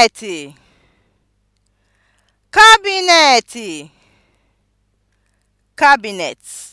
kabinetị kabinetị kabinet